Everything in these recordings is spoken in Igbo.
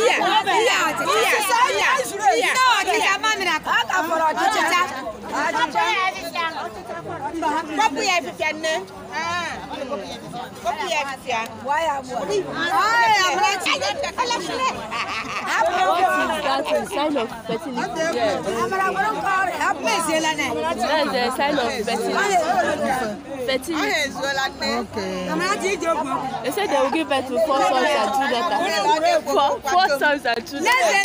iya iya iya iya iya ọchịcha mamịrị akụ ọchịcha kpọpụ ya efifia nne kpọpụ ya efifia. Why am I? I am not sign of fertility. Yes. That's the sign of fertility. Fertility. Okay. They said they will give birth to four sons and two daughters. Four, four sons and two daughters. Let the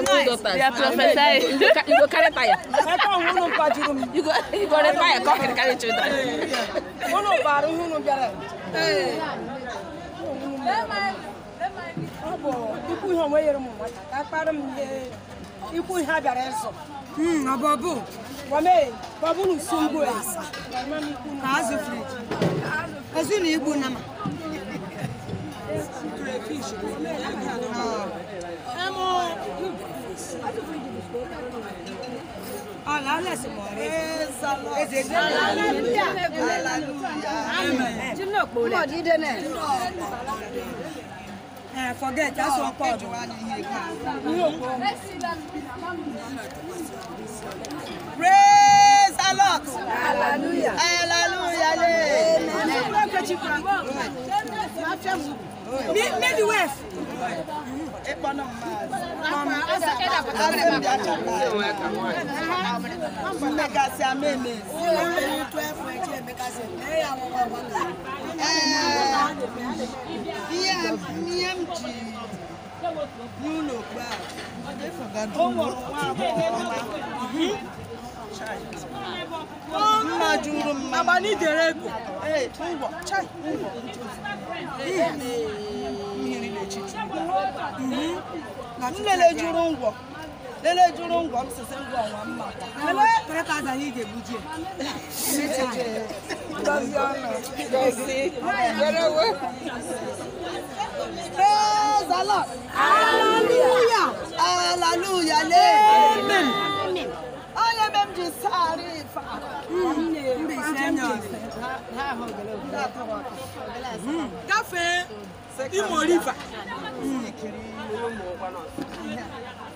noise. Four sons and two daughters. They are prophesying. You, go carry fire. you go you go retire. Come and carry children. Hey. Hmm, bụ ikwu ihe onwe nyere m nwata ka akpara m ihe ikwu ihe a bịara ịzụ ọbọbụ wame babulu sungu kazi friji azuna igbu nama Hallelujah. Hallelujah. Amen. Uh, forget, that's no, what called. Praise a lot. Hallelujah. Hallelujah. Maybe west. EMG UNO crowd. They forgot to vote for Mma juru mma. Mama ni jere ego. Eh, ngwo, chai, ngwo. Eh, mmiri na-echichi. Nlele juru ngwo. Lele juru ngwo m sisi ngwo nwa mma. 3,000 anyị ga-egbuji Praise the Amen. Onye be ji saarị ife Mbe ise m Gafee Imo River.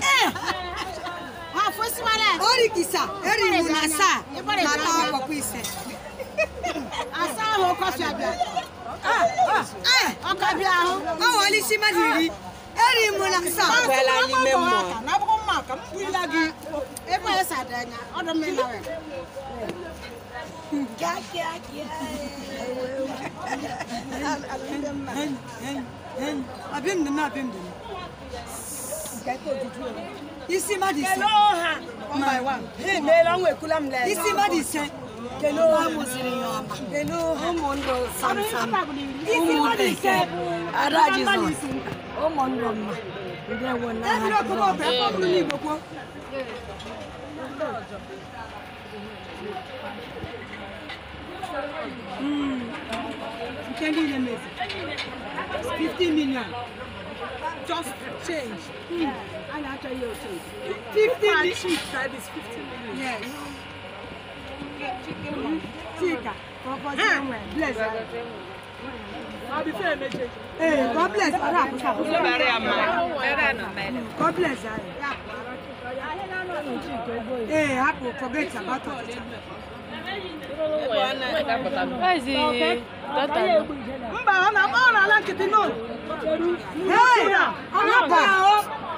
Eh! orikisa eri mu ah, ah. eh, na saa nata akɔkɔ isɛ asa ahu kɔfi abia ɔkɔ abia ahu ɔwɔ ɔlisi ma niri eri mu na saa ɔgbɛla ni mɛ mɔ n'abɔkɔ mɔ ka mu bu ila gi ebe ayɛ sa da nya ɔdɔ mi na wɛ. abim dunu abim dunu isi mmadụ ise imeela ọnwa ekwula m lee isi mmadụ ise ụmụndụ samsam ụmụnne ise ada jizọs ụmụndụ mma ndewo n'aha jizọs nke niile mezi 50 million just change. Mm. Yeah. And actually, you'll change. 15 minutes. That is 15 minutes. Yes. Chika, Chicken. somewhere. Ah. Bless her. Hey, God bless her. God bless her. Hey, Apple, forget about her. Eh, mba ọ na-ala nkịtị ahụ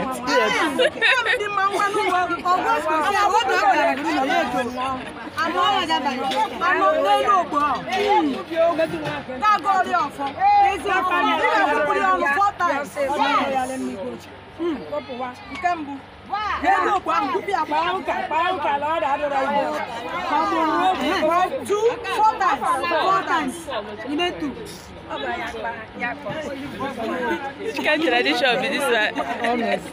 díẹ̀ díẹ̀. ẹ̀ẹ́dì máa ń wá ní ọgbọ́n sùn sí àwọn ọ̀dọ́ ọ̀rẹ́ rẹ̀ nínú ilé ètò àmọ́ ọ̀rẹ́dà bàjẹ́ àmọ́ ọ̀rẹ́ ló gbọ́ káàgó orí ọ̀fọ́ èsì ọ̀fọ́ nígbà tó kúrò ọ̀rùn fọ́tà ẹ̀ ọ̀rẹ́ rẹ̀ Hello, Bambuti, Chicken tradition be this one. Everybody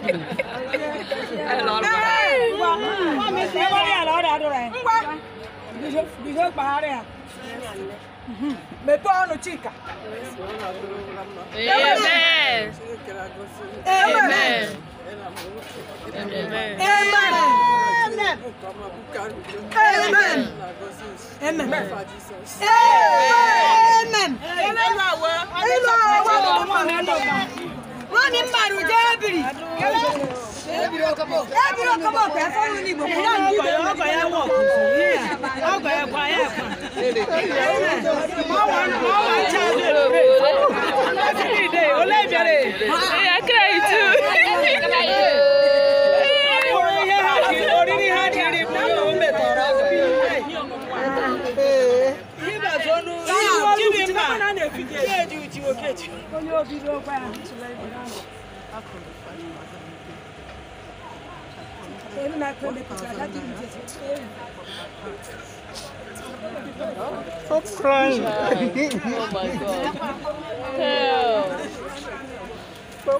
Amen. Amen. Amen. Amen. Amen. Amen. Amen. Amen. Amen. Amen. Amen. Amen. Wọ́n ní màrú jẹ́ ẹ̀bìrì. Ẹ̀bìrì ọkọ̀ bọ̀ pẹ́ fọ́nrún ní ìbò kúrò ní ìbò. Onye obi n'ogbe ahụ tụrụ ebe ahụ. Ele na câmera, já tem um dia. So frank. oh my god. Hell. So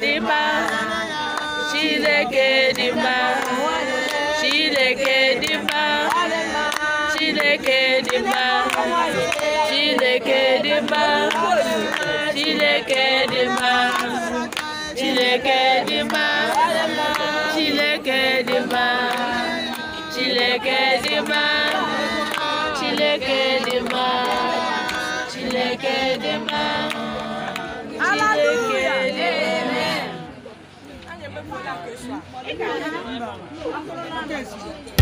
dị mma Chineke dị mma Chineke dị mma Chineke dị mma Chineke dị mma Chineke dị mma Chineke dị mma Chineke dị mma Chineke dị mma Chineke dị mma Chineke dị mma 哎呀，没事。